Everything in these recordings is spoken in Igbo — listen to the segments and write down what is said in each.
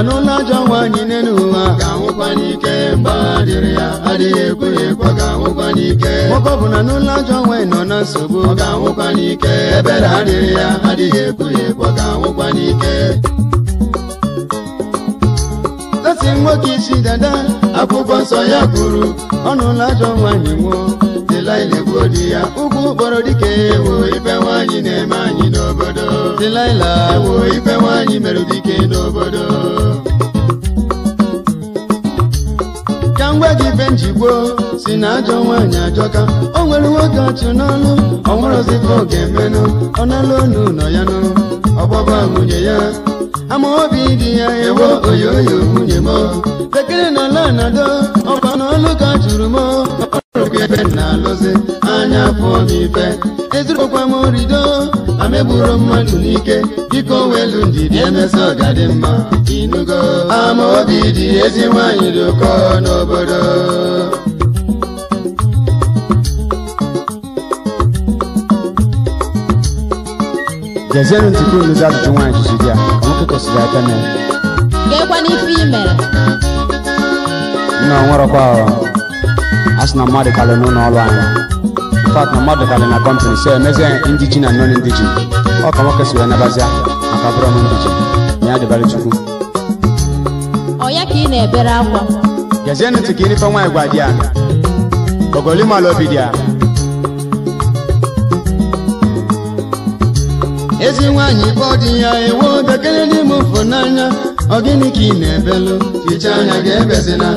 anụla ajọ nwaanyị n'elu ụwa ga-anwụkwa n'ike mba ya ga-anwụkwa n'ike na n'ụlọ ajọ nwaanyị nọ na nsogbu ọ ga-anwụkwa ebere adịrị ya adịghị ga-anwụkwa n'ike nwoke isi dada akwụkwọ nsọ ya kwuru ọnụla ajọ nwaanyị nwụọ tila na-egbu odi ya Ugwu kpọrọ dịka ewo ibe nwaanyị na-eme anyị n'obodo tilaila ewo ibe nwaanyị mere dike n'obodo ka ngwa gị be njigbo si na ajọ nwaanyị ajọka o nwere nwoke achụ n'ọnụ ọnwụrụzikọ ọ ga-emenụ ọ nala onu nọ ya nụ ọgbaba nwunye ya ama obi dị ya ewo oyoyo nwunye m bekere na ala na-adọ ọkwa n'ọlụ ka jụrụ m ebe na alụzi anya pụọ n'ife ezurukwa m rido amegburu mmadụ n'ike biko welu ndidi emesa ọgadị mma inugo ama obi dị ezi nwanyị dị ụkọ n'obodo jezienụ ntụkwu nụzi ajụjụ nwaanyị jụzi di ya nwoke kwesịrị aka na ya gekwana ife i mere nna ọ ahụ asị na mmadụ kalị n'ụlọ ọrụ anyị fat na mmadụ kalị na kọmpanị so emezie ndị ji na non ndị ji ọ ka nwoke si wee nabazia maka bụrụ m ndị ji na ya dịbara chukwu ọya ka ị na-ebere akwa gezie ntị ka inife nwaanyị gwa di ya ogolimalụ obi dị a? ezi nwaanyị kpọ di ya ewu bekele n'ime ụfụ n'anya ọ gịnị ka ị na ebelu hichaa anya ga-ebezina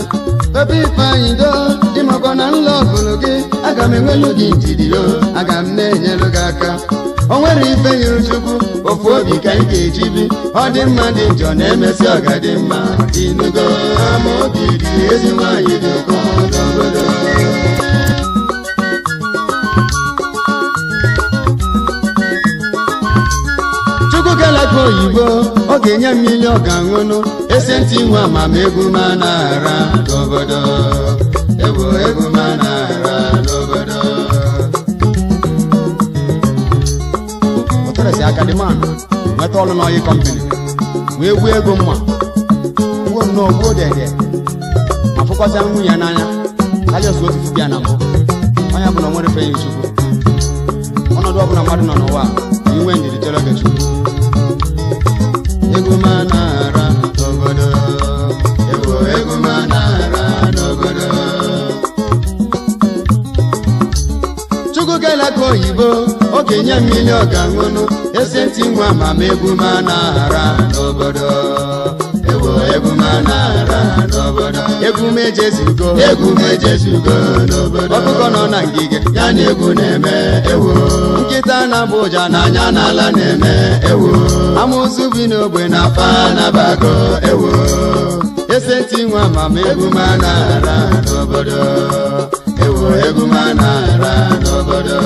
ebe ifeanyị doo maka na nlọ ọgụlụ gị aga m enwelu gị njidiro aga m na-enyelu gị aka o nwere ife nyụrụ chukwu ofu obi ka ị ga-eji bi ọ dị mma dị njọ na-emesi ọga dị mma inugo ama obi dị dị oyibo ọ ga-enye m ihe ọ ga-aṅụnụ esi nwe amam m na-ara n'obodo man nweta ọrụ n'ọyị kọmpini wee gbuo ego mma gbuo m n'ogbuo dede ma fụkọta nwunye ya n'anya karịa otu otu bịa na mbụ onye bụ na nwere fe ya ọnọdụ ọbụla mmadụ nọ n'ụwa a iwe ndidi chere oge chukwu ego maa okenye mmiri ọ ga-aṅụnụ eze ntị nwa ma ma ebumana aghara n'obodo ewo ebumana aghara n'obodo egwume ejezugo egwume ejezugo n'obodo ọkụkọ nọ na ngige ya na egwu na-eme ewo nkịta na-abụ ụja n'anya n'ala na-eme ewo amụsụ bi n'ogbe na afa bago ewo Ese ntị nwa ma ma ebumana aghara n'obodo ewo ebumana aghara n'obodo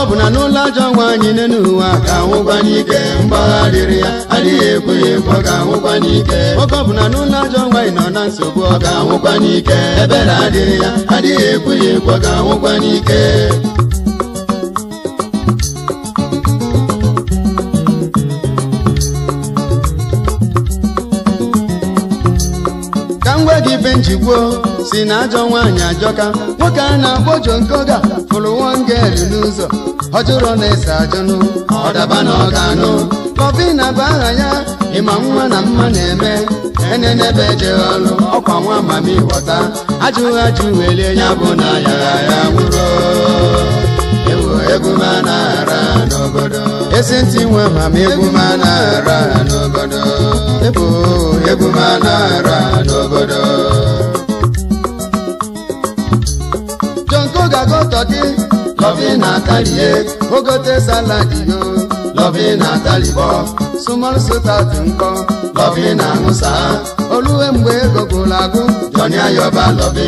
ọ bụ na n'ụlọ ajọ nwa anyị n'elu ụwa ka ahụgbanye ike mgbagharịrị ya adịghị ekwe ekwe ka ahụgbanye ike oge ọ bụ na n'ụlọ ajọ nwa ị nọ na nsogbu ọ ga ahụgbanye ike ebere adịrị ya adịghị ekwe ekwe ka ahụgbanye ike ka m gwa gị ibe njikwuo si na ajọ nwaanyị ajọka nwoke a na-akpọ jonkoga fụrụ wongelu n'ụzọ Ọjụrụ na-ese ajọnụ ọdaba na ọganụ kọfina bụ aha ya ịma nwa na mma na-eme enenebe ejeghị ọlụ ọkwa nwa mami ghọta ajụghị ajụ welie ya bụ na ya ya nwụrụ ewu egwu ma na-ara n'obodo esi ntị nwe mama egwu ma na-ara n'obodo ebu egwu ma na-ara n'obodo pastọ gị lọvi na talie eh. ogote saladi yo lọvi na talibọ sumol sotat nkọ lọvi na ṅụsa oluwe mgbe ego gwụrụ agwụ jọnịa yọba lọvi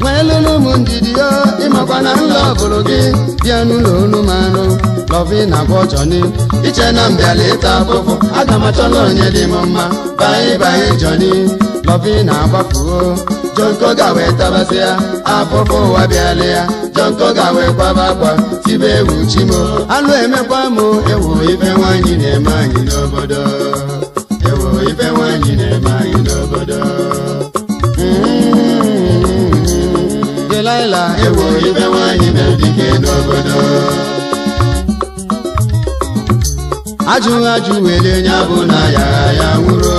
nwee lụlụ ụmụ ndidi yo ịmakwa na nlọ gị bịa n'ụlọ na aga m onye dị m mma baị baị jọni na jọnkọ gawe tabasịa afọfọ ụwa bịalịa jọnkọ gawe kwaba akwa tibe ewu chimo alụ emekwa mụ ewu ife nwaanyị na-eme anyị n'obodo ewu ife nwaanyị na-eme anyị n'obodo mm-hmm. delaịla ewu ife nwaanyị na-edike n'obodo ajụghị ajụ wele nya bụ na ya ya nwụrụ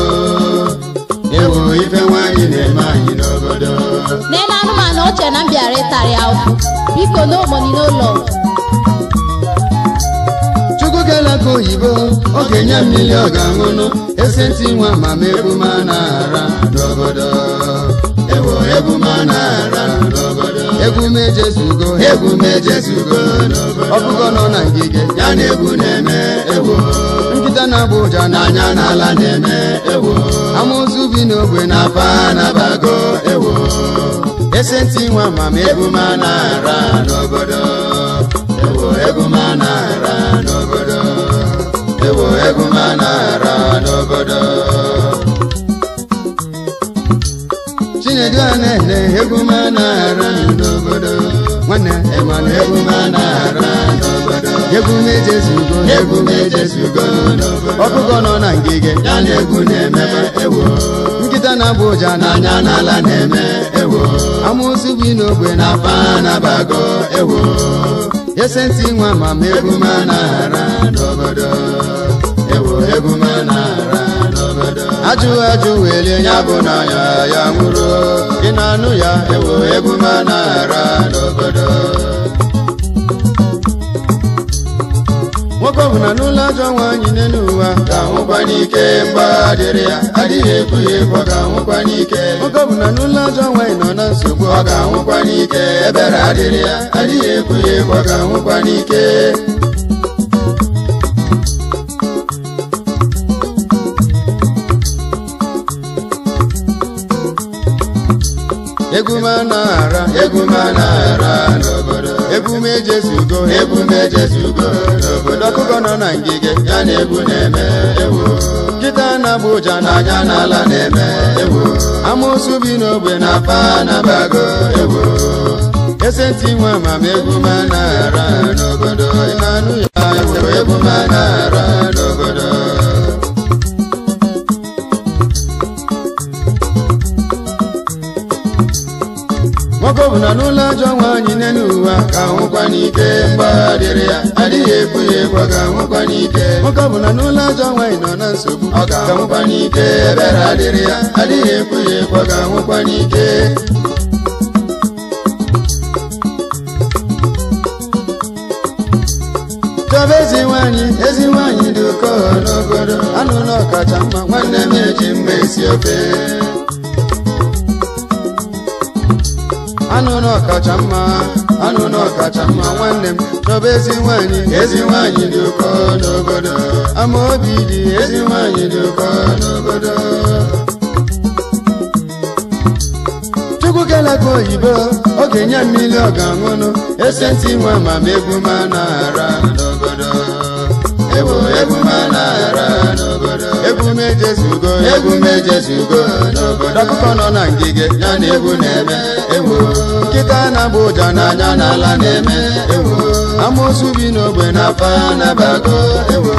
ife nwaanyị na-eme anyị n'obodo n'elu anụmanụ oche na mbịara ịtarị ahụhụ biko n'omoni n'ụlọ chukwu kelaka oyibo ọ ga-enye mmiri ọ ga-aṅụnụ esi ntị nwa ma ma ebuma na-ara n'obodo ewo ebuma na-ara n'obodo ebume jesugo ebume jesugo ọ bụgo nọ na ngige ya na egwu na-eme egwu. Abuja na Abuja anya n'ala na-eme ewo amụzụ bi n'ogbe na aba na-abago ewo esenti nwa ma m egwu ma na-ara n'obodo ewo egwu ma na-ara n'obodo ewo egwu ma na-ara n'obodo chinedu a na-ele egwu ma na-ara n'obodo nwanne egwu ma na-ara egwu na-ejezugo egwu na-ejezugo ọkụkọ nọ na ngige ya na egwu na-eme ewo nkịta na-abụ ụja n'anya n'ala na-eme ewo amụsụ bi n'ogbe na apa na-abago ese ntị nwa ma ma egwu ma na-ara n'obodo ewo egwu ma na-ara ajụ ajụ welie ya bụ na ya ya nwụrụ ị na-anụ ya ewo egwu ma na-ara n'obodo Ọ bụ na n'ụlọ ajọ nwaanyị n'elu ụwa ka nwụkwa n'ike mgba dịrị ya adịghị ekwu ya ekwu ọ ga-anwụkwa n'ike Akụkọ bụ na n'ụlọ ajọ nwaanyị nọ na nsogbu ọ ga-anwụkwa n'ike ebere adịrị ya adịghị ekwu ya ekwu ọ ga-anwụkwa n'ike egwu m anaghara egwu ara anaghara ebume ejezugo ebume ejezugo n'obodo ọkụkọ nọ na ngige ya na ebu na-eme ewo nkịta na-abụ ụja n'anya n'ala na-eme ewo amụsụ bi n'ogbe na pa na-abago ewo ese ntị nwe amamegwu ma na-ara n'obodo ịmanụ ya ewo egwu ma na-ara nwoke ọ bụla n'ụlọ ajọ nwa n'elu ụwa ka nwụkwa n'ike mgbagharịrị ya adịghị ebu ya egwu ka nwụkwa n'ike nwoke ọ bụla n'ụlọ ajọ nwa nọ na nsogbu ọ ka nwụkwa n'ike ebere adịrị ya adịghị ekwu ya egwu ka nwụkwa n'ike chọba ezi nwaanyị ezi nwaanyị dị oke n'obodo anụ na ọkacha mma nwanne m eji mma esi ofe anụ ọkacha mma anụ ọkacha mma nwanne m chọba ezi nwanyị ezi nwanyị dị ụkọ n'obodo ama obi dị ezi nwanyị dị ụkọ n'obodo chukwu oyibo oge nye mmiri ọ ga-aṅụnụ esenti nwe ma megbu ma na ara ejezugo egwu m ejezugo n'obodo akụkọ nọ na ngige ya na egwu na-eme ewo nkịta na-agba ụja n'anya n'ala na-eme ewo amoosu bi n'ogbe na Aba na-abago ewo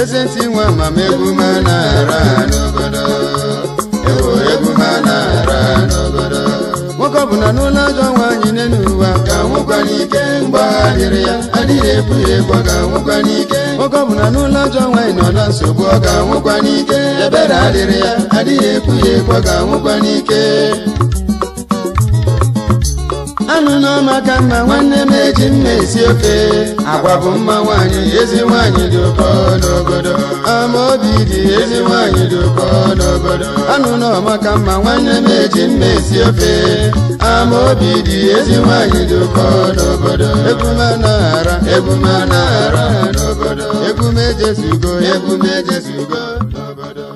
eze ntị nwe amamegwu m na-ara n'obodo bụ na n'ụlọ ajọ nwaanyị n'elu n'ụwa ka nwụkwa n'ike mgbagharịrị ya adịghị epu ya egwu ọ ga-anwụkwa n'ike oge ọ bụ n'ụlọ ajọ nwaanyị nọ na nsogbu ọ ga-anwụkwa n'ike ebere adịrị ya adịghị epu ya egwu ọ ga-anwụkwa n'ike anụ n'ọma ka mma nwanne m eji mma esi ofe agwa bụ mma nwaanyị ezi nwaanyị dị ụkọ n'obodo Ama obi dị ezi nwaanyị dị ụkọ n'obodo anụ n'ọma ka mma nwanne m eji mma esi ofe ama obi dị ezi nwanyị dị ụkọ n'obodo ebume anaghara ebume anaghara n'obodo ebume ejezugo ebume ejezugo n'obodo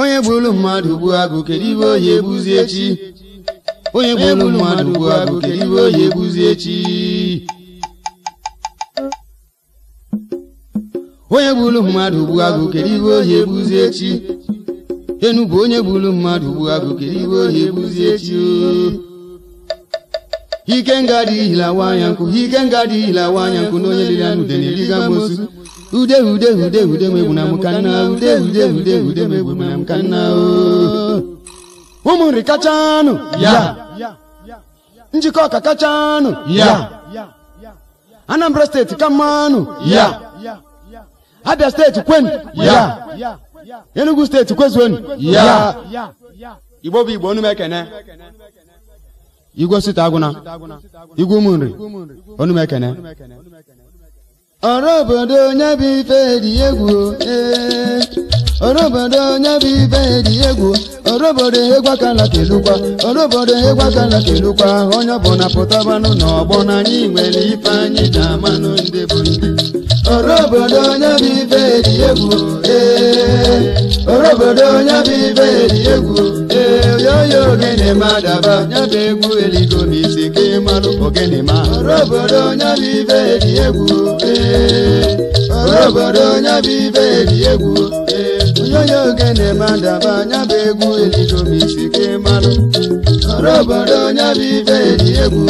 onye gburu mmadụ gbuo agụ kedu ibe ohi egbuzi echi onye gburu mmadụ gbuo agụ kedu ibe ohi egbuzi echi onye gburu mmadụ ugbu agụ kedu iwe ohi egbuzi echi enugwu onye gburu mmadụ ugbu agụ kere iwe ohi egbuzi echi ike nga dị hilawa anya nkụ ike nga dị hilawa anya nkụ na onye liri anụ ude na-eriga m'osu. ude ude ude ude mgbe na m ka nna ude ude ude ude mgbe na m ka nna ụmụnri kachanụ ya njikọ ọka kachanụ ya Anambra steeti ka mmanụ ya abia steeti kwenu ya enugu steeti kwezuonu ya igbo bụ igbo Onumekene Igbo igwe osita agụna igwe ụmụ nri onume ọrụ obodo onye bụ ife dị egwu eh. orobodo onye bụ ibe dị egwu orobodo egwu aka na kelukwa orobodo egwu aka na kelukwa onye ọbụla pụtabanụ n'ọgbọ na anyị nwere ife anyị na-amanụ ndị bụ ndị orobodo onye bụ ibe dị egwu ee orobodo onye bụ ibe dị egwu ee yoyo ogene ma daba onye bụ egwu eligo n'isi ka ịmalụ ogene ma orobodo onye bụ ibe dị egwu ee orobodo onye bụ ibe dị egwu ee onye ogene madaba anya bụ egwu eligomisi ke ịmalụ ọrụ obodo onye bụ ibe eli egwu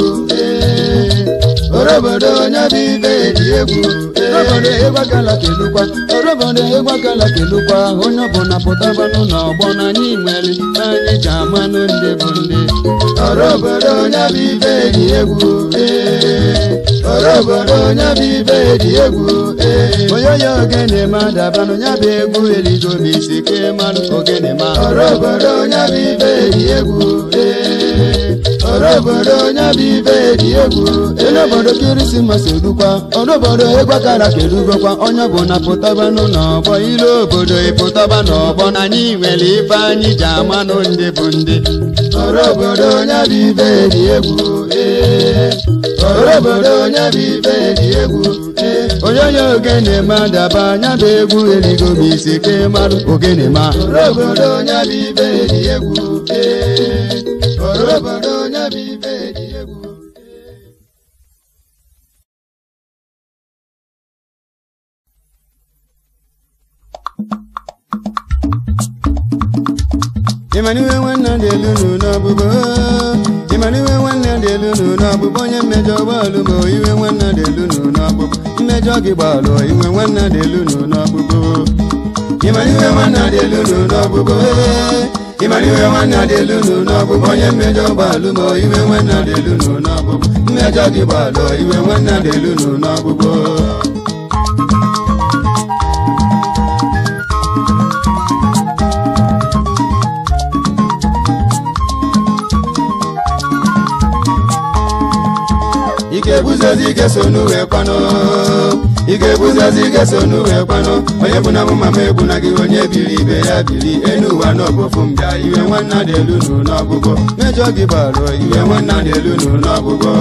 obodo onye dị ibe dị egwu obodo ịgbagala kelukwa obodo ịgbagala kelukwa onye ọbụla pụtabanụ n'ọgbọ na anyị nwere anyị ji amanụ ndị bụ ndị ọrụ obodo onye bụ ibe dị egwu ọrụ eh, obodo onye bụ ibe dị egwu eh, onye ya ogene ma dabanụ ya bụ egwu eligo m isi ka ịmanụ ogene ma ọrụ obodo onye bụ ibe dị egwu ọrụ obodo onye bụ ibe dị egwu ele obodo kirisimasi dukwa ọrụ obodo egwa kara kedugokwa onye bụ na pụtaba n'ọgbọ ile obodo ịpụtaba e n'ọgbọ na anyị nwere ife anyị ji amanụ nụ ndị bụ ndị ọrụ obodo onye bụ ibe dị egwu ee ọrụ obodo onye bụ ibe dị egwu e. onye ogene ma daba anya bụ egwu erigo m isi ke marụ ogene ma obodo onye bụ ibe dị egwu ee obodo Emmanuel n'iwe dị elu dị elu nu n'ọbụbọ onye mmejọ gbalụ ma iwe nwanne dị elu nu mmejọ gị gbalụ iwe mmejọ iwe nwanne dị elu mmejọ ị ga-ebuzozi ike so n'uwe kwanụ ị ga-ebuzozi ike so n'uwe kwanụ onye bụ na mụ mama egbu na gị onye biri ibe ya biri enu ụwa n'ọbụfụ m bịa iwe nwanna dị elu n'ụlọ ọgwụgwọ mejọ gị bara iwe nwanna dị elu n'ụlọ ọgwụgwọ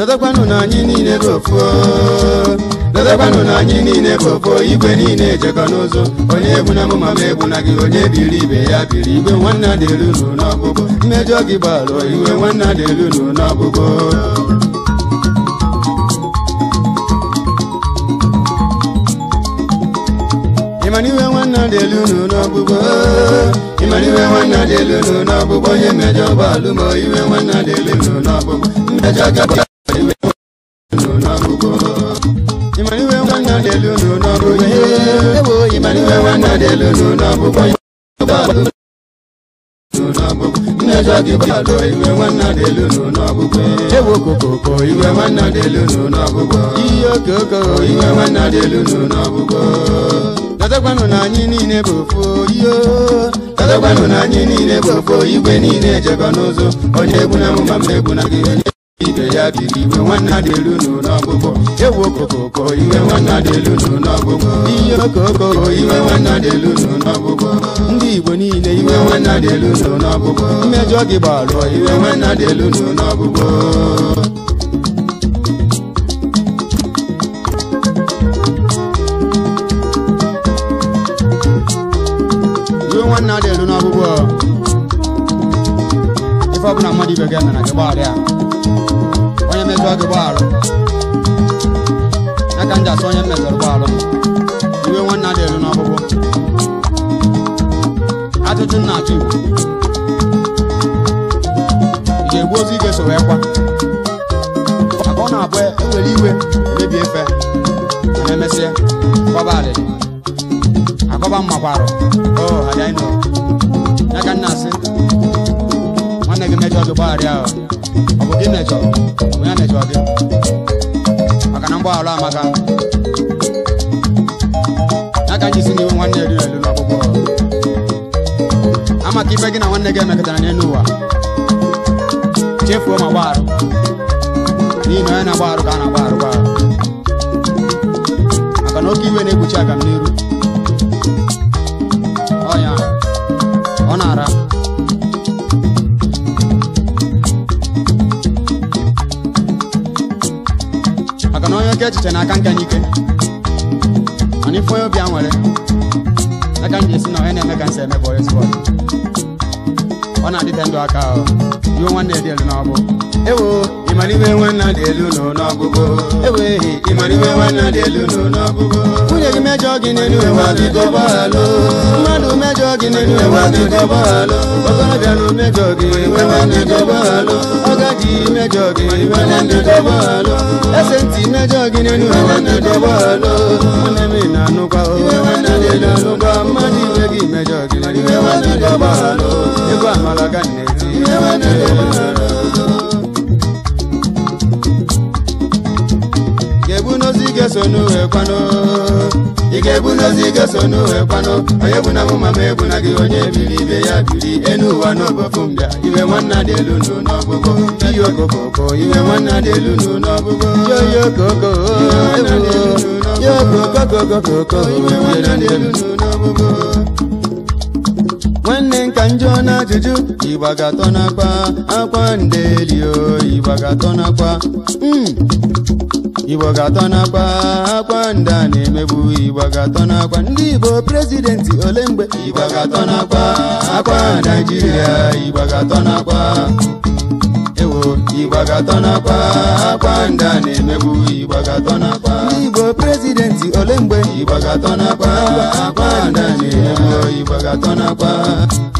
Dọdọkwanụ na anyị niile bụ ofu dọdọkwanụ na anyị niile bụ ofu igwe niile ejekọ n'ụzọ onye egbu na mụma ma egbu na gị onye biri ibe ya biri igwe nwanne adịelu nụ n'ọgbụgbọ mmejọ gị gbalụ iwe nwanne adịelu nụ n'ọgbụgbọ ịmara iwe nwanne adịelu nụ n'ọgbụgbọ ịmara iwe nwanne elu nụ n'ọgbụgbọ onye mmejọ gbalụ ma iwe nwanne adịelu nụ n'ọgbụgbọ mmejọ gị nwannadelunu anyị niile bụ ofu tatakwanụ na anyị niile bụ ofu igwe niile jeba n'ụzọ onye egwu na na gị onye ibe ya iwe nwanne dị elu nụ n'ọgụgụ ewu okokoko iwe nwanne dị elu nụ ihe okokoko iwe nwanne dị elu ndị igbo niile iwe nwanne dị elu nụ n'ọgụgụ mmejọ gị gbalụọ iwe nwanne dị elu nụ n'ọgụgụ nwanne ọbụla mmadụ ibe ga gị mejọrọ gị gbaalụ ya ka m ji asọ onye mmejọrọ gbaalụ iwe nwanne a na-eru ajụjụ nna ị ga-egbu ozu ga-eso wee kwa maka ọ na-abụ ewere e iwe e mebi efe ma emesịa kọba akọba mmakwarụ o anyị nọ?" ka nna asị nwanne gị mejọ gị gbagharịa ahụ imecho muyane choke akanambwa ala maka nakajisiniwe mwanne lilelulwa bobo ama kipe kina wanne kemeketana nenuwa chefuwe mabwaro ninoyana bwaro kana bwaro bwaro akanokiwe nekuchaka mniru echiche na aka nke anyị ike mana ife onye obi a nwere aka m ji esi na onye na-eme ka nsị emebụ ezigbo ọ na-adịte ndụ aka ọ iwe nwanne dị elu nwunye mejọ gị n'elu mmadụ mejọ gị n'elu okorobịa na mejọ gị ọgadi mejọ gị ese ntị mejọ gị n'elu nwanne m na-anụkwa mmadụ iwe gị mejọ gị ịgwa amala ga na-eti ga-eso n'uwe kwanụ ị ga-ebu n'ozi ga-eso n'uwe kwanụ onye bụ na mụ ma ma ebu na gị onye biri ibe ya biri enu ụwa n'obofu mbịa iwe nwanna dị elu nụ n'ọgụgụ iyi okokoko iwe nwanna dị elu nụ n'ọgụgụ yoyi okoko yoyi iwe nwanna dị elu nụ n'ọgụgụ nwanne m ka njọ na ajụjụ ibagatona nakwa akwa ndelio ịgbagatọ nakwa ịgbagatọ ibagatona akwa ndị a na-emebu ịgbagatọ nakwa ndị Igbo prezidenti ole mgbe akwa Naịjirịa ịgbagatọ nakwa ewo ịgbagatọ nakwa akwa ndị a na-emebu ịgbagatọ nakwa ndị Igbo prezidenti know kwa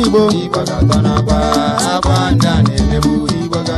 igbo igbo ga-atọ n'akwa akwa ndị a na-emegbu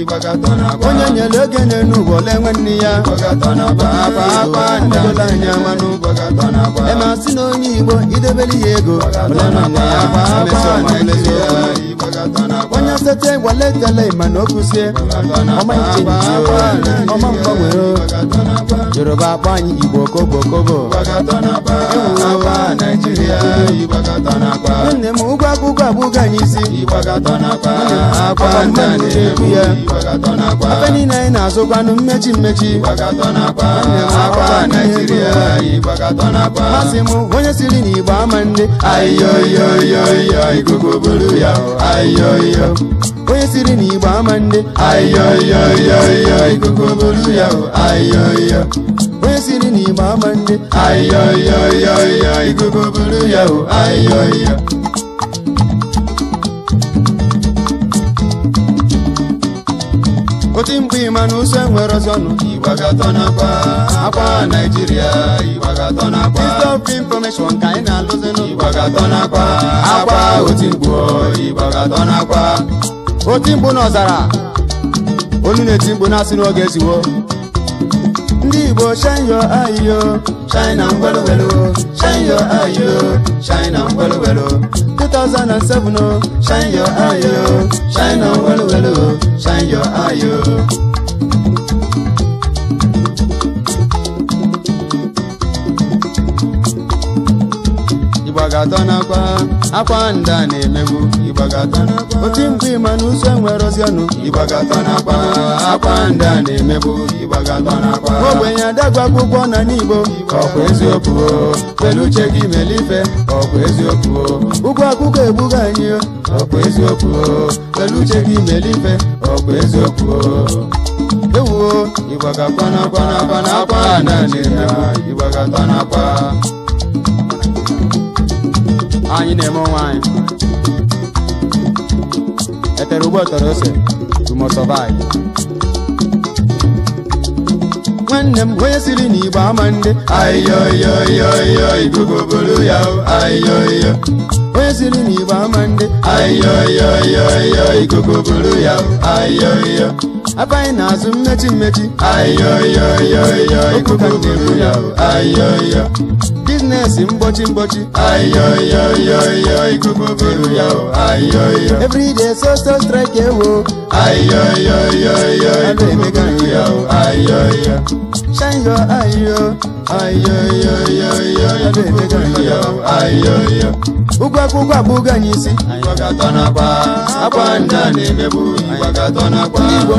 onye nyere ego na enwe nne ya adola anya manụ emasị na onye igbo idebere ya ego onye sete waletele mana o kụzie ọma mgbanwere yoruba akpọ anyị igbo kobo nne m ụgwọ akwụkwọ abụghị anyị isi ya ebe niile anyị na-azụkwanụ mmechi mmechi masị m onye siri n'igbo ama ndị onye siri n'igbo ama ndị onye siri n'igbo ama ndị oti mgbe ịmanụso enwere ọzọ nụ ịgbagatọ n'akwa akwa naijiria ịgbagatọ n'akwa stop information ka anyị na-alụzinụ ịgbagatọ n'akwa akwa oti mgbu ịgbagatọ n'akwa oti mgbu n'ọzara onu na-eti mgbu na-asị n'oge eziwo ndị Igbo shine your eye yo shine na ngwelụgwelụ shine your eye yo shine na ngwelụgwelụ 2007 o shine your eye yo shine na ngwelụgwelụ shine your eye yo ịgbagatọ n'akwa akwa nda na-emegbu ịgbagatọ otu oti mkpu ịma na ụzọ nwere ozianụ ịgbagatọ n'akwa akwa nda na-emegbu ogbenye adagwa akwụkwọ na n'igbo ọkwa eziokwu kpelu uche gị melife ọkwa eziokwu ụgwọ akwụkwọ egbughị anyị ọkwa eziokwu kpelu uche gị melife ọkwa eziokwu ewuo ịgbagakwanakwanakwanakwa naanị na ịgbagatanakwa anyị na-eme onwe anyị etere ụgbọ tọrọ ose you must nwanne m onye siri n'igbo ama nde ayoyoyoyo bụrụ ya ayoyo onye siri n'igbo ama nde ayoyoyoyo bụrụ ya ayoyo aka anyị na-azụ mmechi mmechi ayoyoyoyo bụrụ ya ayoyo na-esi mgbochi mgbochi everyday so so strike ewo shine your eye ụgwọ akwụkwọ abụghị anyị isi ndị Igbo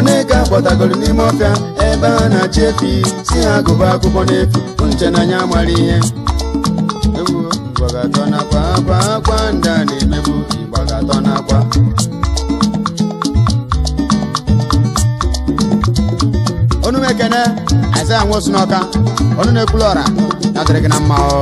na-eke Akwa n'ime ọfịa ebe a na-achị efi si ha agụba akwụkwọ n'efu nche n'anya mara ihe igbo ga-atọ n'akwa akwa akwa ndị a na-emebu igbo ga-atọ n'akwa onu m ekene aịzaya nwosu n'ọka onu na-ekwulu ọra na dịrị gị na mma ọ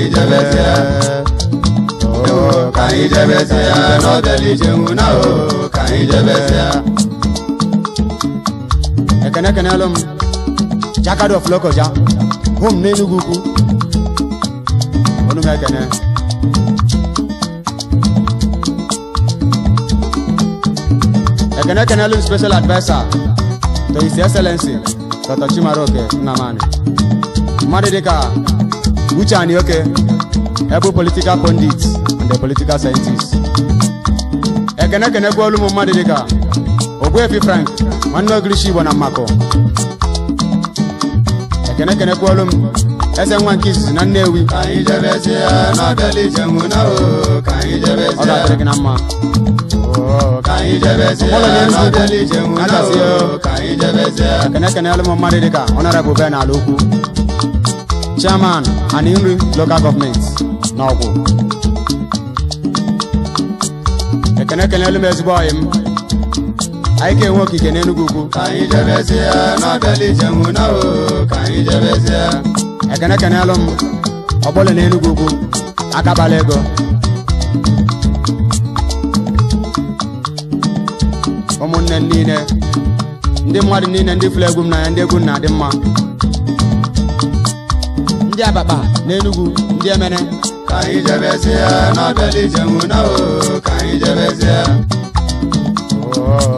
kàyí jẹ́bẹ́ tí ẹ. kàyí jẹ́bẹ́ tí ẹ lọ́dẹ̀lì jẹun náà o kàyí jẹ́bẹ́ tí ẹ. ẹ̀kẹ́nẹ́kẹ́nẹ́ ọlọ́mu jákàdọ̀ fúlọ́kọ̀já hóum ní inú kúkú onúmẹ̀kẹ́nẹ́. ẹ̀kẹ́nẹ́kẹ́nẹ́ ọlọ́mu special adviser to his excellency dr chimaroke nnamani mmadụ dịka Uche Anioke, Every political pundit and the political scientist. Ekene eh, kene kwa mumadi dika. dịka fi Frank, nwanne Ogilishi wana mako. Mmakọ. Eh, Ekene kene kwa olu eze nwa nke izizi na Nnewi. Ka anyị jebezie n'ọbịala ije nwụna o, ka anyị jebezie. Ọ ga-adịrị gị na mma. Ka anyị jebezie n'ọbịala ije nwụna o, ka anyị jebezie. Ekene kene olumu mmadụ dịka ọnọrọ bụ bee n'ala ukwu. chairman and nri local gọọmenti na Ekene ekene elu m ezigbo ọyị m anyị ga-enwe okike n'Enugu ukwu ekene ekenelu m ọgbọle na Enugu ukwu akabala ego ụmụnne m niile ndị mmadụ niile ndị fụrụ egwu m n'anya ndị egwu m na-adị mma ndị abakpa na Enugu ndị emene ka anyị jebezie n'abịala ije nwuna o ka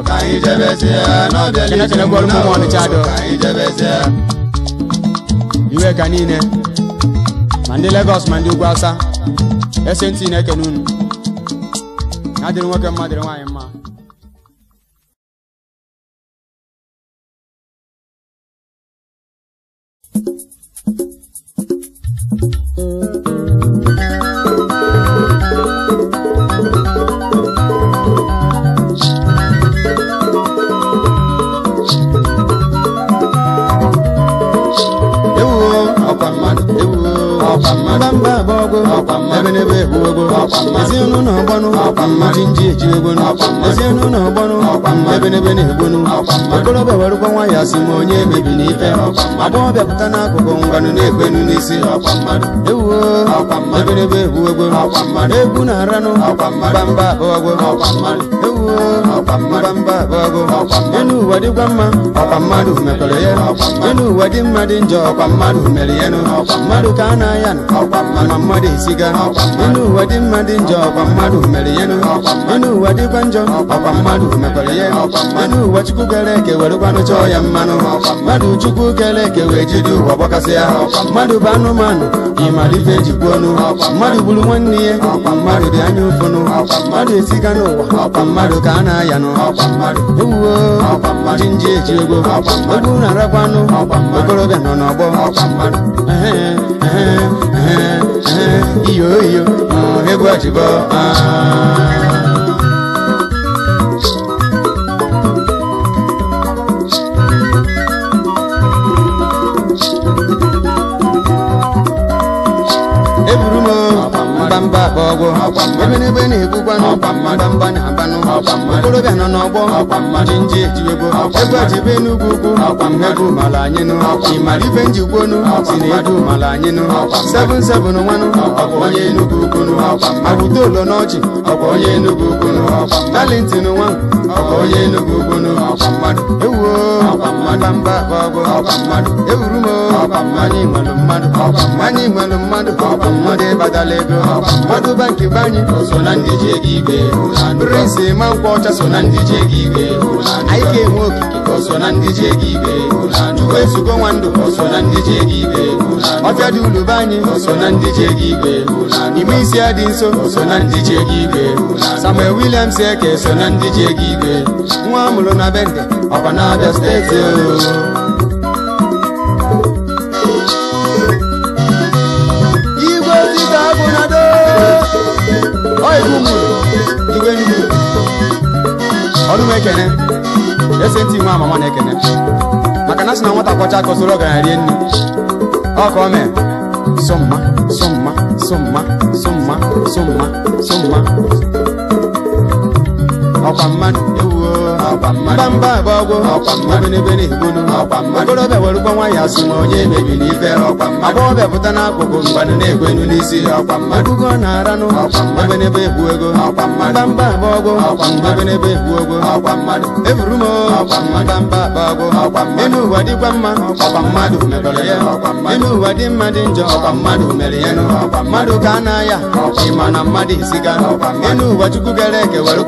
ka iwe ka niile ma ndị Lagos ma ndị ugwu ese ntị na-ekene unu adịrị nwoke mma nwaanyị mma ọgbanụ ndị nji ejibe egbonu ezienu na ọgbanụ ebenebe na-egbonu okorobịa warụkwa nwa ya si ma onye emebi na ife agbọghọbịa pụta n'akụkụ ngwanụ na-egbenu n'isi ewuo ebenebe egbu egwu na aranụ gbamba abụọ ewuo gbamba enu ụwa dịkwa mma ọkwa mmadụ mekọrọ ya enu ụwa dị mma dị njọ ọkwa mmadụ mere ya mmadụ ka a na-aya mmadụ esiga enu ụwa dị mma dị njọ ọkwa mmadụ ịnụ ụwa dịkwa njọ ọkwa mmadụ mekwara ihe ịnụ ụwa chukwu kere eke werekwanụ chọọ ya mmanụ mmadụ chukwu kere eke wee jide ụwa gbakasịa mmadụ bụ anụmanụ ịmara ife ejikwa ọnụ mmadụ gburu nwanne ya ọkwa mmadụ dị anya ụfụnụ mmadụ esiga n'ụwa ọkwa mmadụ ka a na-aya nụ ewuo jinji eji ego egwu na-arakwanụ okorobịa nọ n'ọgbọ iyo iyo egwu ah. na ọgwụ na-ebukwa n'ọgba mbamba na okorobịa nọ n'ọgbọ jinji ejiwebo ugwu ego mara anyị nụ ịmara ife njigwonu si na ego mara anyị nụ sebụn sebụn nwanụ ọbụ onye enugwu ukwunu abụta olo n'ọchị ọbụ onye enugwu ukwunu talentin nwa ọbụ onye enugwu ukwunu ewuo ọgwụ ewuru m mmadụ anyị mmadụ mmadụ agụba nke be anyị prince ma nkwụ ọcha so na ndị ji ego anyị ga-enwe okike chukwu ezugo nwa ndụ ọbịa dị ulu gị anyị ime isi ya dị nso Samuel Williams Eke so na ndị ji nwa amụrụ na bende ọkwa na Abia steeti maka na sị na nwata kwọcha aka soro rie nri ọ ka ọ mee somma somma somma somma somma somma mbamba bụ ọgwụ obenebene gbolu okorobịa were ụgwọ nwa ya sị na onye mebiri ibe agbọghọbịa pụta na mgbanụ na-egwenụ n'isi agugo na-aranụ obenebe egbu ego mbamba bụ ọgwụ obenebe egbu ego eburu m mbamba bụ ọgwụ ime ụwa dịkwa mma mmadụ ya Ịnụ ụwa dị mma dị njọ mmadụ mere ya mmadụ ka a na-aya ịma mmadụ isiga enu ụwa gara eke were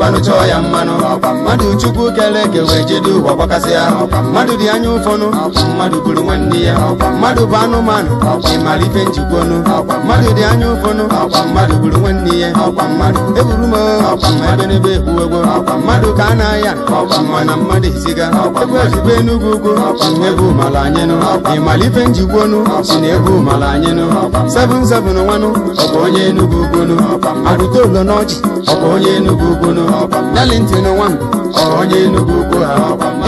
mmanụ mmadụ chukwu kere eke wee jide ụwa gbakasị ya mmadụ dị anya ụfọnụ mmadụ bụrụ nwanne ya mmadụ bụ anụmanụ ọkwa ife njikwonụ mmadụ dị anya ụfọnụ ọkwa mmadụ bụrụ nwanne ya mmadụ eburu m ebe n'ebe egbuwego mmadụ ka a na-aya ọkwa mmadụ eziga ebe enugwu ugwu ọkwa ebe ịmara ife njikwonụ si na ebe ụmala anyenụ seven seven nwanụ onye enugwu ugonụ agụta ụlọ n'ọchị onye enugwu 2021 onye Enugu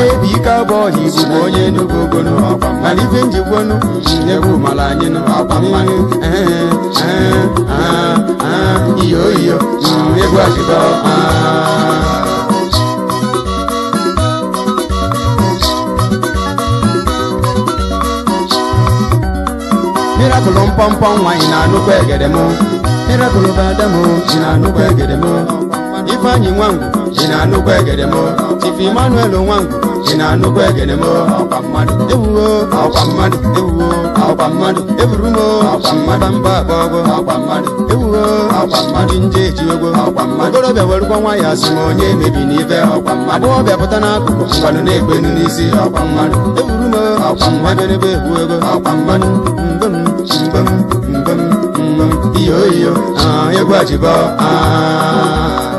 ebi ike abụọ na Igbo bụ onye Enugu gonu mana ife njikwonu nyegbu mara anyị iyo iyo egwu achịba mirakụlụ mpọmpọ nwaanyị na-anụkwa egede m mirakụlụ bụ adamu ji na-anụkwa egede m ifeanyi nwangu ji na anụkwa egede m chief emmanuel nwangu ji na anụkwa egede m ọkwa mmadụ ewuwo ọkwa mmadụ ewuwo ọkwa mmadụ eburu m ọkwa mmadụ mba agbọgọ ọkwa mmadụ ewuwo ọkwa mmadụ nje ejiwego ọkwa mmadụ okorobịa werukwa nwa ya asị m onye emebi n'ife ọkwa mmadụ ọbịa pụta n'akụkụ mgbanụ na-egbenu n'isi ọkwa mmadụ eburu m ọkwa mmadụ ebe ewu ego ọkwa mmadụ mbem mbem mbem mbem iyo iyo ah, egwu ajibo ah.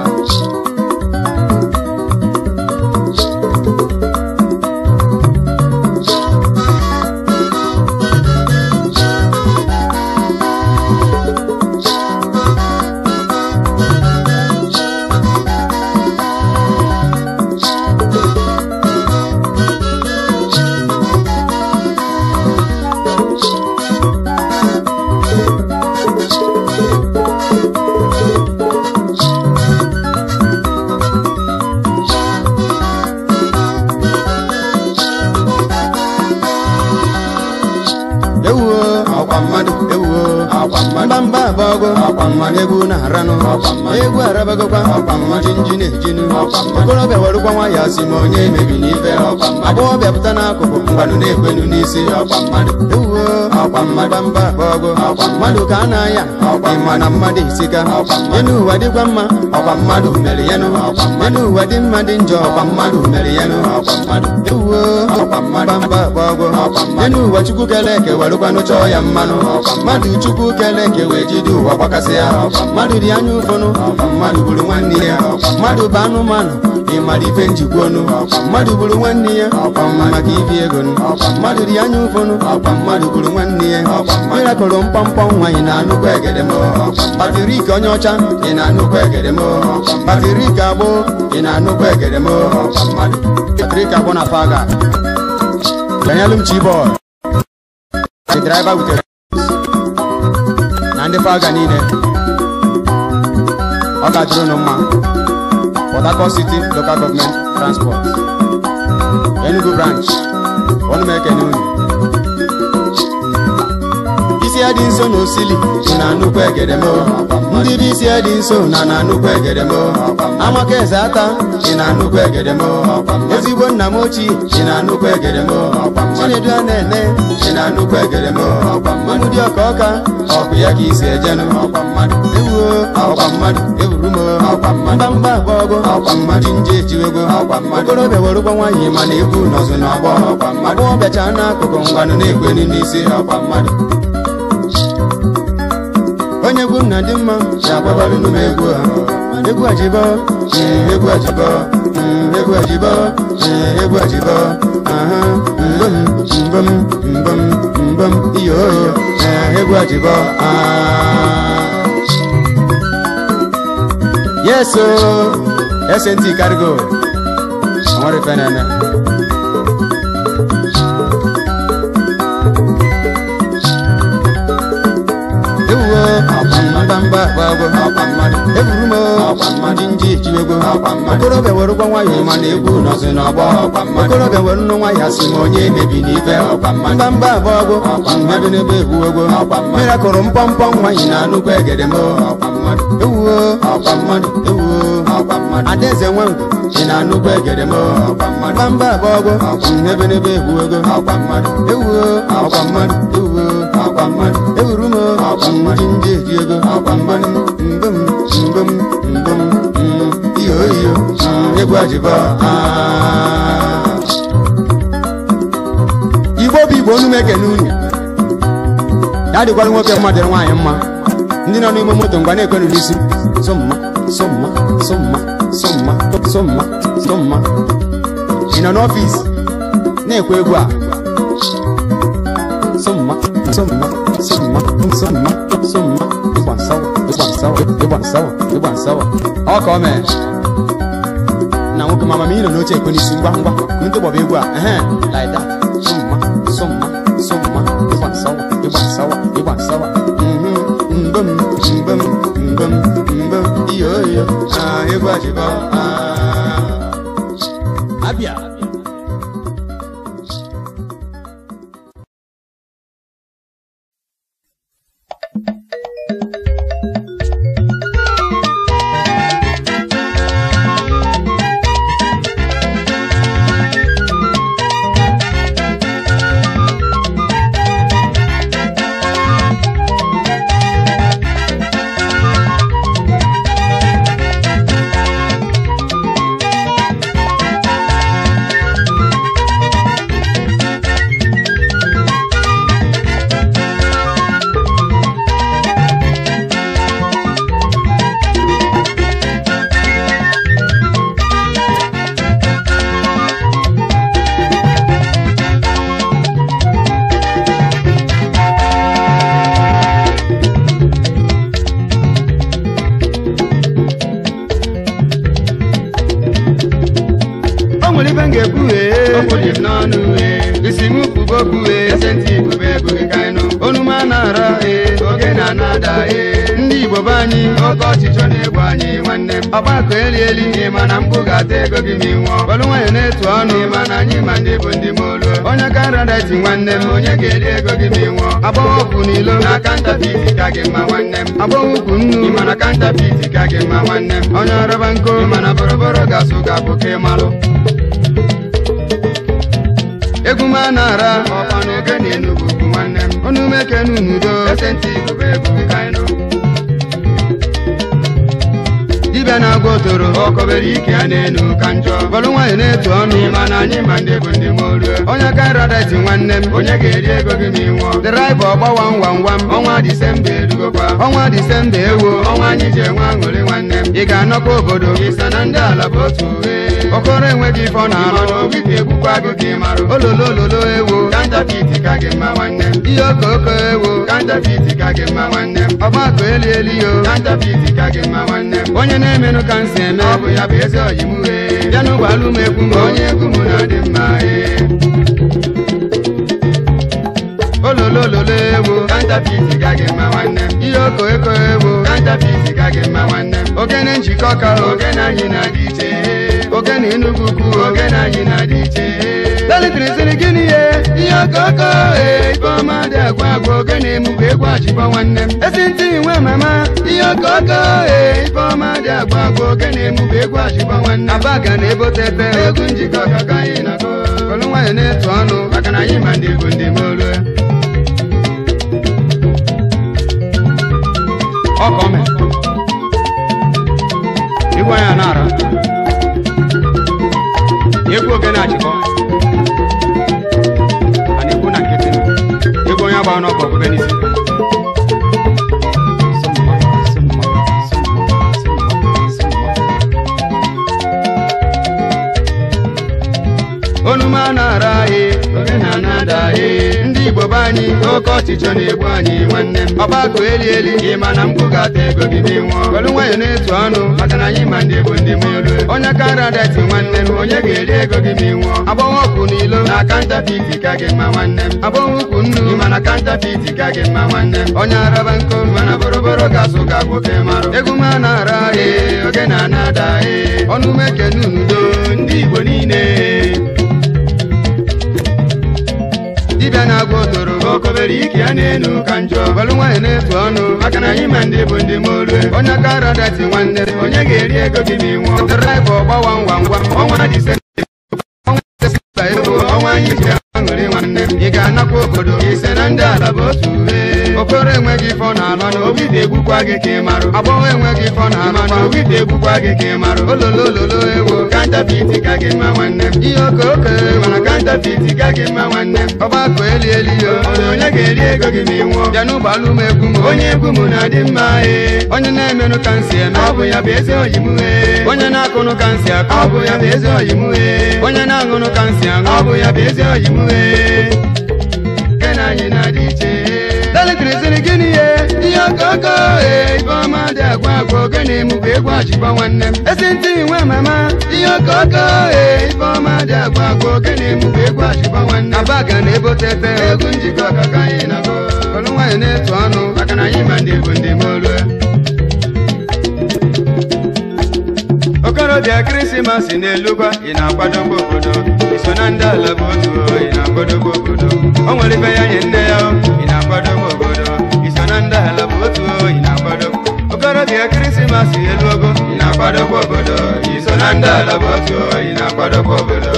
agbọghọbịa were ụgwọ nwa ya ma onye emebiri n'ife ọkwa mmadụ agbọghọbịa pụta n'akụkụ mgbanụ na-ekwenu n'isi ọkwa mmadụ ewuo ọkwa mmadụ mba ọgụ ọkwa mmadụ ka a na-aya ọkwa ịma na mmadụ isika enu ụwa dịkwa mma ọkwa mmadụ mere ya nụ enu ụwa dị mma dị njọ ọkwa mmadụ mere ya nụ ewuo ọkwa mmadụ mba ọgụ enu ụwa chukwu kere eke were ụgwanụ chọọ ya mmanụ mmadụ chukwu kere eke wee jide ụwa gbakasị ya mmadụ dị anya ụfọnụ mmadụ gburu nwanne ya mmadụ bụ anụmanụ ị mara ife njikwa ọnụ mmadụ bụrụ nwanne ya maka ibi ego mmadụ dị anya ụfọnụ mmadụ bụrụ nwanne ya mkpọmkpọ nwa ị na-anụkwa egede m onye ọcha ị na-anụkwa egede m batrik agbụ ị na-anụkwa egede m batrik agbụ na faga niile ọ ga Port Harcourt City Local Government Transport Enugu Branch Onumeke Nunu. isi ya dị nso n'osili, na nnukwu egedemo ndị dị isi ya nso na na nnukwu egedemo amaka eze ata dị na nnukwu egedemo ezigbo nna m ochie dị na nnukwu egedemo chinedu a na-ene dị na nnukwu egedemo mmanụ dị ọka ọka ọkụ ya ka isi ejenụ ewuo ọkwa mmadụ ewuru m mgbamgba agba ọgụ ji nje ejiwego okorobịa were ụgwọ nwaanyị na-ekwu n'ọzụ na ọgbọ agbọghọbịacha n'akụkụ mgbanụ na-egwenu n'isi ọkwa mmadụ onye egwu na dị mma na-agbabarị n'ụmụ egwu a egwu ajibọ egwu ajibọ hmm, egwu ajibọ egwu ajibọ aha mbom mbom mbom mbom iyo eh, egwu ajibọ ah. yeso oh. SNT Cargo ọmọdé fẹ́ràn na mgba agbago eburu m ji nji okorobịa were ụgwọ nwayọ egwu okorobịa were nnu nwa ya si onye na egede m ewuo ewuo na egede m ndị eji ego igbo bụ igbo onu mekene unu ya dịkwara nwoke mma dịrị nwaanyị mma ndị nọ n'ime moto mgbe na-ekwenụ n'isi somma somma ị nọ n'ọfịs na-ekwe egwu a sông mắc sông mắc sông mắc sông mắc cái bản sau cái bản sau cái bản sau cái bản sau họ có mẹ nào cái mama mi nó nói chuyện con đi xin băng băng mình tôi bảo bê qua à lại đó sông mắc sông mắc sông mắc cái bản sau cái bản sau cái bản sau bum bum bum bum iyo iyo ah ego ajiba ah abia kunilo akanta biti kage ma nwanne m abụghị kunnu ịmana kanta biti kage ma nwanne m onye ọrọba nko ịmana boroboro gasụ ga bụ ka ịmalụ egwu m a na-ara ọkwa oge na enugwu bụ nwanne m ọnụ n'udo esenti igbo bụ egwu ka ịnụ dibịa na-agwa otoro okobere ike a na-enu ka njọ bọlụ nwaanyị na-etu ọnụ na anyị ma ndị bụ ndị moruo onye ka nradati nwanne m onye ga-eri ego gị ma ịnwụọ draịva ọgbawa ngwa ngwa m ọnwa disemba edugokwa ọnwa disemba ewo ọnwa anyị ji enwe aṅụrị nwanne m ị ga-anọkwa obodo ịsa na ndị ala bụ otu uhe okoro enweghị ife na-alụ n'obi ka egbukwa gị ka ị marụ ololo ewo kantafiti ka gị mma nwanne m ihe oko oko ewo kantafiti ka gị mma nwanne m ọgbakọ eli eli yo kantafiti ka gị mma nwanne m onye na-emenụ ka m eme ọ bụ ya bụ eze ọyị m uhe bịa n'ụgbọ alụ egwu m onye egwu m na-adị mma ololo e. ololo ewo kantafiti ka gị mma nwanne m ihe oko oko ewo kantafiti ka gị mma nwanne m ogene njikọ ka ogene anyị na-adị iche Oge ogene Enugu ukwu ogene anyị na-adị iche lelitiri sịrị gịnị ye ihe okoko ee eh, ifeọma dị agwa agwa na emugu egwu achịkwa nwanne m esi ntị nwe mama ihe okoko ee eh, ifeọma dị agwa agwa na emugu egwu achịkwa nwanne Aba ga na ebotete egwu njikọ kaka anyị na-akọ olu nwayọ na-etu ọnụ maka na anyị ma ndị bụ ndị molu ọkọme ịgwa ya na ara ego ogene achịkọ a na-ekwu na nkịtị ego onye agba n'ọkụ ọgụgụ n'isi onuma na-ara ye oge na-anada ye anyị oke ọchịchọ na-egbu anyị nwanne m ọgbakọ eli eli ị ma na mkpu ga-ata ego gị dị nwụọ kolu nwayọ na-etu ọnụ maka na anyị ma ndị bụ ndị molu onye kara dati nwanne m onye ga-eri ego gị ma ị nwụọ ọkụ n'ilo na kanta piti ka gị mma nwanne m agbọghọ ukwu nnu ị ma na kanta piti ka gị mma nwanne m onye araba nko mana boroboro ga-asụ ga nwoke marụ egwu m na-ara ee oge na-ana ada ee ọnụ ume kenu n'udo ndị igbo niile dibịa na-agwa odo okobere ike ya na-enu ka njọ ọlụ nwaanyị na-etu ọnụ maka na anyị ma ndị bụ ndị ma olue onye aka ara dati nwanne onye ga-eri ego gị ọnwa mana obi na-egbukwa gị ka ị marụ agbọghọ enweghị fọ na mana obi na-egbukwa gị ka ị marụ ololololo ewo kantapiti ka gị mma nwanne m ihe oke oke mana kantapiti ka gị mma nwanne m ọgbakọ eli eli yo onye ga-eri ego gị ma ị nwụọ bịa n'ụgbọala m egwu m onye egwu m na-adị mma e. onye na-emenụ ka nsị eme ọ bụ ya bụ eze oyi m e. onye na-akụnụ ka nsị akụ ọ bụ ya bụ eze oyi m e. onye na-aṅụnụ ka nsị aṅụ ọ bụ ya bụ eze oyi m e. nke na anyị na-adị iche ee gịnị ihe okoko ifeọma dị agwa agwa na mụbụ egwu achịkwa nwanne m esi ntị nwe mama ihe okoko ifeọma dị agwa agwa na mụbụ egwu achịkwa nwanne m abaga na ebotete egwu njikọ ọkaka anyị na-abụ ọnụ nwaanyị na-etu ọnụ maka na anyị ma ndị bụ ndị molu okorobịa krismas na-elugwa ị na-akwadobe obodo iso na ndị ala bụ otu ị na-akwadobe obodo o nwere ibe ya nye nne ya ị na-akwadobe obodo nanda alabutu inagbado okorobịa krismas eluogo inakwadokwa obodo iso na ndị alabutu inakwadokwa obodo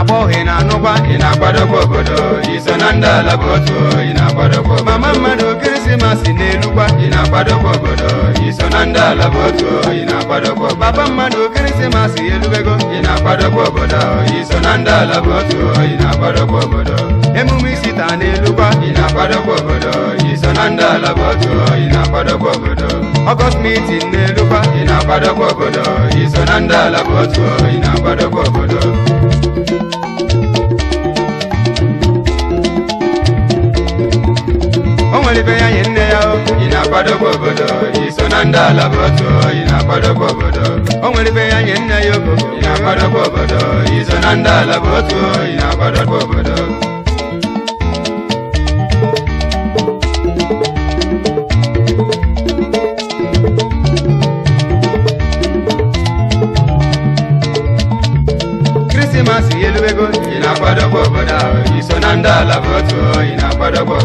agbọghị na anụkwa ịna-akwadokwa obodo iso na ndị alabutu ịna-akwadokwa mama mmadụ krismas na-elukwa ịna-akwadokwa obodo iso na ndị alabutu ịna-akwadokwa papa mmadụ krismas elubego ịna-akwadokwa obodo iso na ndị alabutu ịna-akwadokwa obodo emume isita n'elugwa ị na-akwadokwa obodo iso na ndị ala bụ otu ị na-akwadokwa obodo ọgọst mitin n'elugwa ị na-akwadokwa obodo iso na ndị ala bụ otu ị na-akwadokwa obodo o nwere ibe ya nye nne ya ị na-akwadokwa obodo iso na ndị ala bụ otu ị na-akwadokwa obodo o nwere ibe ya nye nne ya ị na-akwadokwa obodo iso na ndị ala bụ otu ị na-akwadokwa obodo ndị ala bụ otu ị na-akwadogbo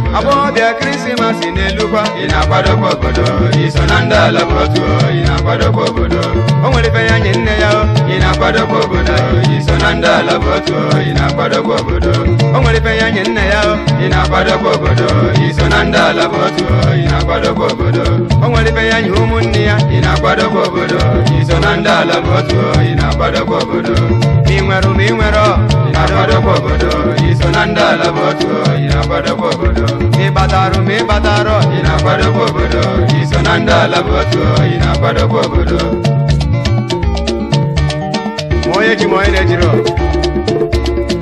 n'elukwa ị na-akwadogbo obodo iso na ndị ala bụ otu ị na-akwadogbo obodo o nwere ife ya nye nne ya ị na-akwadogbo obodo iso na ndị ala bụ otu ị na-akwadogbo obodo o nwere ife ya nye nne ya ị na-akwadogbo obodo iso na ndị ala bụ otu ị na-akwadogbo obodo o nwere ife ya nye ụmụnne ya ị na-akwadogbo obodo iso na ndị ala ịna otu ị obodo ị nwere ụmụ ị nwere bada bobodo isolanda la boto ina bada bobodo me badaro me badaro ina bada bobodo isolanda la boto ina bada bobodo moye ki moye ne jiro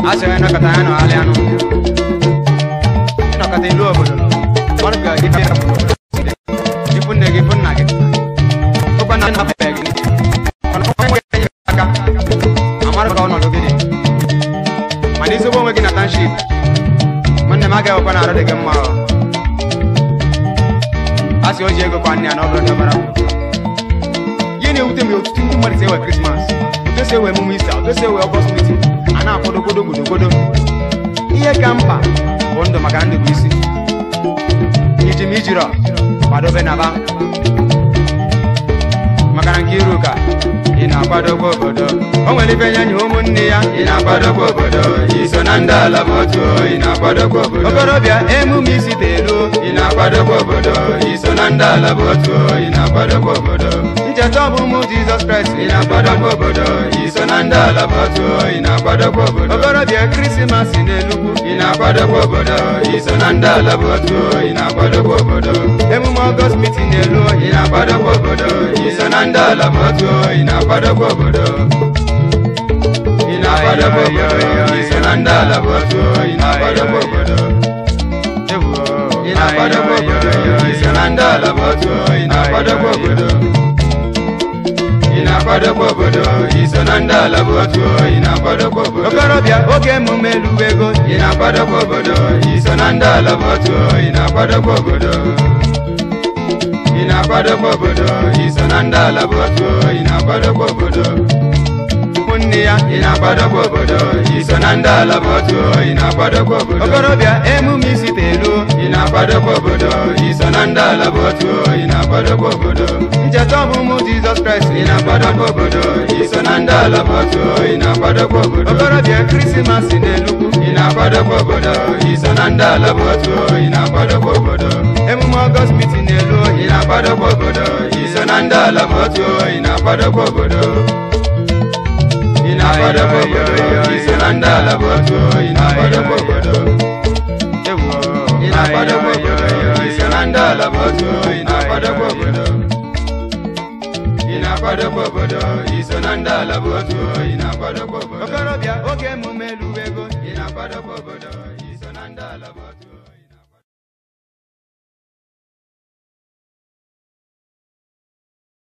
ase na kata ano ale ano ina kata ilu obodo marga ibe na bobodo ipunne gipunna gipunna obana na ha ga na arụ dị gị mma a sị o ji ego kwa nne ya na ọ dabara na-ewute m otutu ndị mmadụ si ewe krismas otu ewe emume isi otu enwe ewe ọgbọs mitin a na-akwado godo godogodo ihe ka mkpa bụ ndụ maka ndụ bụ isi iji m ijirọ kwadobe naba maka na nke iru ka ị na-akwadobe obodo o nwere ibe nye nye ụmụnne ya ị na-akwadobe obodo iso na ndị ala bụ otu ị na-akwadobe obodo okorobịa emume isite elu ị na-akwadobe obodo iso na ndị ala bụ jẹtọ mumu jesus christ. iná gbọ́dọ̀ gbọgbọdọ ìsọnàndà alábàtú iná gbọ́dọ̀ gbọgbọdọ. ọgọrọ bíi kírísímàsì n'Enugu. iná gbọ́dọ̀ gbọgbọdọ ìsọnàndà alábàtú Ina gbọ́dọ̀ gbọgbọdọ. emume august meeting n'elu ọyìn. Ina gbọ́dọ̀ gbọgbọdọ ìsọnàndà alábàtú iná gbọ́dọ̀ gbọgbọdọ. iná gbọ́dọ̀ gbọgbọdọ ìsọnàndà alábàtú iná gbọ́dọ̀ gbọgbọdọ. iná gbọ́dọ̀ gbọgbọdọ ìsọnàndà alábàtú iná gbọ́dọ̀ gbọgbọdọ ịna-akwadokwa obodo iso na ndị ala bụ otu ịna-akwadokwa obodo okorobịa oge emume lụwa Ina ịna-akwadokwa obodo iso na ndị ala bụ otu ịna-akwadokwa obodo ịna-akwadokwa obodo iso na ndị ala bụ otu ịna-akwadokwa obodo nne ya ị na-akwadokwa obodo i so na ndị ala bọtuo ị na-akwadokwa obodo okorobịa emume isite elu ị na-akwadokwa obodo i so na ndị ala bọtuo ị na-akwadokwa obodo ncheta ọmụmụ jizọs kraịst ị na-akwadokwa obodo i so na ndị ala bọtuo ị na-akwadokwa obodo okorobịa krismas na ị na-akwadokwa obodo i na ndị ala bọtuo ị na-akwadokwa obodo emume ọgọst mitin elu ị na-akwadokwa obodo i na ndị ala bọtuo ị na-akwadokwa obodo ina bada bogodo kisilanda la boto ina bada bogodo ina bada la boto ina bada bogodo ina ina ina